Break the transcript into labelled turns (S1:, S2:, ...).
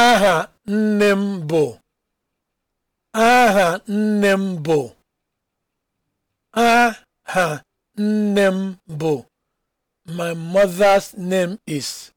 S1: aha nne m bụ aha nne m bụ aha nne m bụ my mother's name is